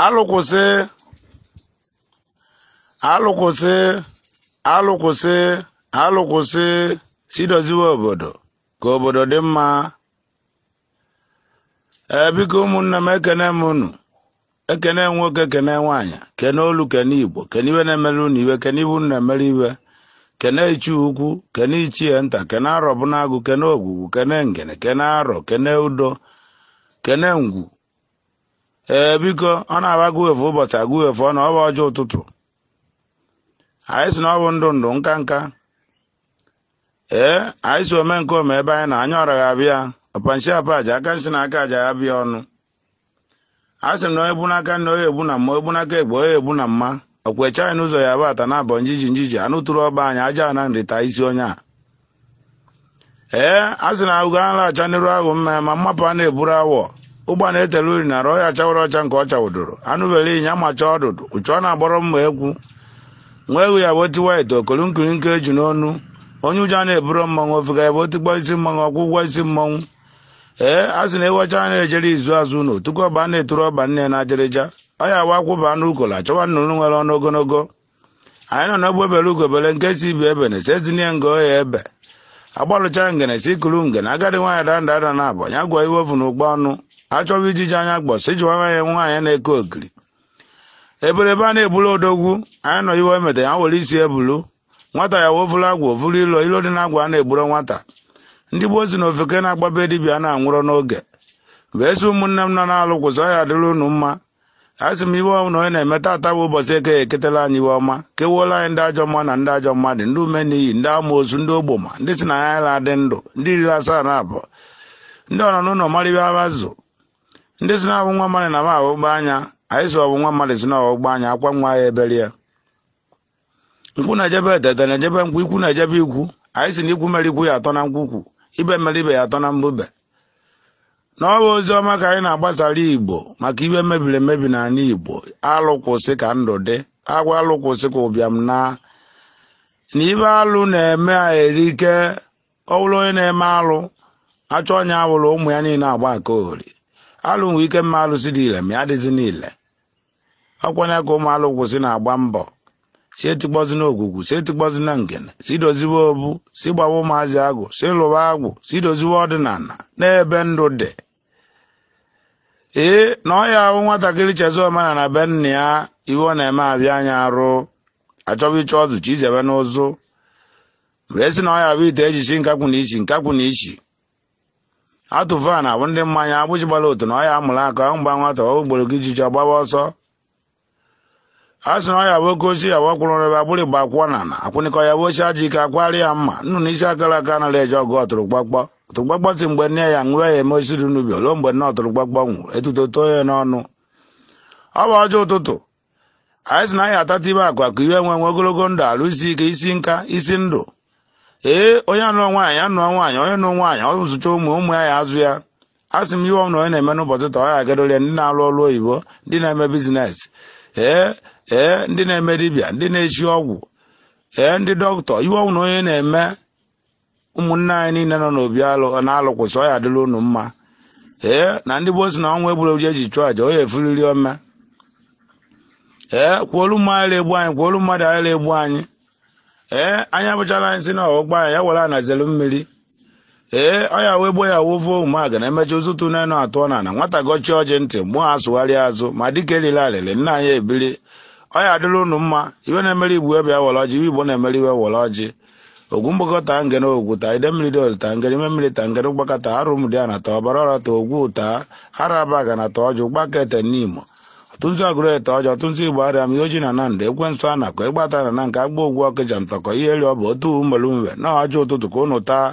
alụkwụsị alụkwụsị alụkwụsị alụkwụsị si doziwe obodo ka obodo dị mma ebiko ụmụnne m ekene m unu ekene nwoke kene nwaanyị kene olu kene igbo kene iwe na-emere iwe kene iwu na-emere iwe kene ichi ukwu kene ichie nta kene arọ bụ n'agụ kene ogwugwu kene ngene kene arọ kene udo kene ngwu ee biko ọ na-agba guwefu ụbọchị aguwefu ọ na ọ bụ ọjọọ ụtụtụ anyị si na ọ bụ ndụ ndụ nka nka ee anyị si ome nke ome ebe anyị na anya ọra abịa ọpanshi apaja aka nshi na aka aja ya bịa ọnụ a sị na onye bu n'aka nna onye egbu na mma egbu n'aka egbe onye egbu na mma okwecha anyị n'ụzọ ya bụ ata na abọ njiji njiji anụ tụrụ ọba anyị aja na nrita isi onye a ee a sị na agụgo a nalacha n'iru ahụ mma ma mmapụ a na-eburu awọ ụgbọ na-etere uri nara ọya chawara ọcha nke ọ chawụdoro anụbere ịnya amacha ọdụdụ uchu ọ na-agbọrọ mma ekwu nwa ewu ya bụ tiwa ite okolu nkiri eju e n'ọnụ onye ụjọ na-eburo mmanwụ ofega ya bụ otikpọ isi mmanwụ ọkwụ ụgwọ isi mmanwụ ee a sị na ewecha a na-ejere izu azụ na otuku ọba na-eturu ọba nne na ajerịja ọ ya wa akwụba anụ ukola chọwa nnụnụ nwere ọnụ ogologo anyị nọ n'ogbe bere ugobele nke si ibi ebe na sezinie nga oya ebe agbalụcha ngene si kuru ngene agadi nwaanyị danda ada na abọ ya gwọ iwe ovu na ụgbọ ọnụ achọwa ijiji anya gbọsị ijiwara ya nwaanyị na-eke okiri eberebe a na-ebulu odogwu anyị nọ iwe emeta ya were isi ebulu nwata ya wovulu agwa ovulu ilo ilo dị na agwa a na-egburo nwata ndị gboo si na ofeke na-agbabe dibia na-anwụrọ n'oge mgbe esi ụmụnne m nọ na-alụ kwụsọ ya dịrị unu mma a sị m iwe na onye na-eme tata bụ ụbọchị eke eketela anyị iwe ọma kewuola anyị ndị ajọ mma na ndị ajọ mmadụ ndị ume n'iyi ndị ama ozu ndị ogboma ndị si na ya la adị ndụ ndị iri asaa na abụọ ndị ọnọ n'ụlọ marịba azụ ndị si na nwa mmadụ na m aghọgbu anya anyị si ọwụ nwa mmadụ si na ọghọgbu anya akwa nwa ya ebere ya nkwụ na-ejebe etete na-ejebe nkwụ ikwu na-ejebe ikwu anyị si na ikwu mere ikwu ya atọ na nkwukwu ibe mere ibe ya atọ na mbube na ọwa ozi ọma ka anyị na-agbasara igbo maka ibe mebiri emebi na n'ala igbo alụ kwụsị ka ndụ dị agwa alụ kwụsị ka ụbịam na na ibe alụ na-eme erike ọ bụrụ onye na-eme alụ achọ onye awụrụ ụmụ ya niile agba aka ori alụ nwe ike mma alụsị dị ile ma ya dịzi n'ile ọkwanye ka ụmụ alụ kwụsị na-agba mbọ si etikpọzi na ogwugwu si etikpọzi na ngene si doziwe obu si gbawa ụmụazị agwụ si lụwa agwụ si doziwe ọdịnala n'ebe ndụ dị ee na ọ ya ahụ nwatakịrị chezi na be nna ya iwe ọ na-eme abịa anya arụ achọba ịchọ ọzụ chi n'ụzụ mgbe esi na ọ ya bụ ite ejichi nkakwụ na ichi nkakwụ na ichi na abụ ndị mmanya agbụji gbara otu na ọya amụrụ aka mgba nwata ogboro gị jiji ọgbaba ọsọ a sị na ọya bụ oke ochie yawa kwụrụ ebe agbụrụ igba akwụkwọ na na akwụnịkọ ya bụ ochie aji ike akwari ya mma nnu na isi akara aka anaghị eje ọgụ ọtụrụgbakpọ ọtụrụgbakpọ si mgbe nne ya nwụọ ya eme osiri n'ubi ruo mgbe nne ọtụrụgbakpọ nwụrụ etuto too ya n'ọnụ ọ bụ ọjọọ ụtụtụ anyị sị na anyị atata ibe akụ akụ iwe nwe nwe ogologo ndụ alụsi ike isi nka isi ndụ ee onye anụọ nwaanyị anụọ nwaanyị onye nụọ nwaanyị ọ zụcha ụmụ ụmụ ya ya azụ ya asị m ihe ọnụ onye na-eme n'ụbọchị taa ọ ya ya ndị na-alụ ọrụ oyibo ndị na-eme bizines ee ee ndị na-eme dibịa ndị na eji ọgwụ ee ndị dọkịta ihe ọnwụ na onye na-eme ụmụnne anyị niile nọ n'obi alụ na-alụ kwụsị ọ ya adịla ụnụ mma ee na ndị bụ si na ọnwa egburegbu eji chụọ aja onye efuriri ome ee kwuolu mmadụ egbu anyị kwuolu mmadụ anyị egbu anyị ee eh, anya abụchala anyị na ọgbọ anyị ya were anazelu mmiri ee eh, ọya wee gbo ya wovo ụmụaga na emecha ụzụtụ n'enu atụọ na na nwata gọchie ọjị ntị mụọ asụgharịa azụ ma dịka elile alịlị nna anyị ebili ọya adịrị ụnụ mma iwe na-emere igbu ebe were ọjị iwe igbo na-emere iwe were ọjị ogwu mgbakọta ngere ogwu ta ide mmiri dol ta ngere ime mmiri ta ngere mgbakọta arụ mdi a na ta ọbara ọra ta ogwu ta araba ga na ta ọjị gbakete n'imo tụzi ọgụrụete ọjọọ tụzi igbo arịa m ihe oji na nandị ekwensụ a nakọ ịgbatara na nke agba ogwu ọkịja ntọkọ ihe eri ọ bụ otu umelumwe na ọjọ ụtụtụ ka ụnụ taa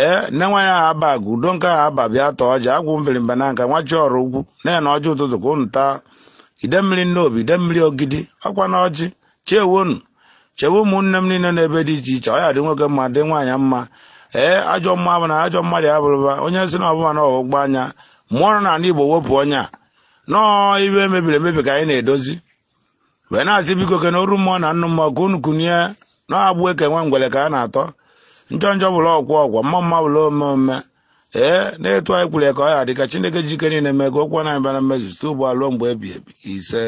ee nne nwa ya ha aba agụ udo nke aha aba bịa tọọ ọja agwụ mbirimba na nka nwa chi ọrụ ugwu na na ọjọ ụtụtụ ka ụnụ taa ide mmiri obi ide mmiri ogidi ọkwa na ọjị chewonu chewe ụmụnne m niile ebe dị iche iche ọ dị nwoke mma dị nwaanyị mma ee ajọ mma bụ na ajọ mmadụ abụrụba onye si na ọbụma na ọgbụgba anya mmụọ na ala igbo wepụ onye a nọọ iwe mebiri emebi ka anyị na-edozi wee na-asị biko ke na mmụọ na nnụ mmụọ ka unu kunye na-agbụ eke nwe ngwere ka a na-atọ njọ njọ bụla ọgwụ ọgwọ mma mma bụla ome ome ee na-etu anyị kwuru ya ka ọ ya ka chineke jike niile mee ka okwu na-abịa na mmezu site ugbu mgbe ebi ebi ise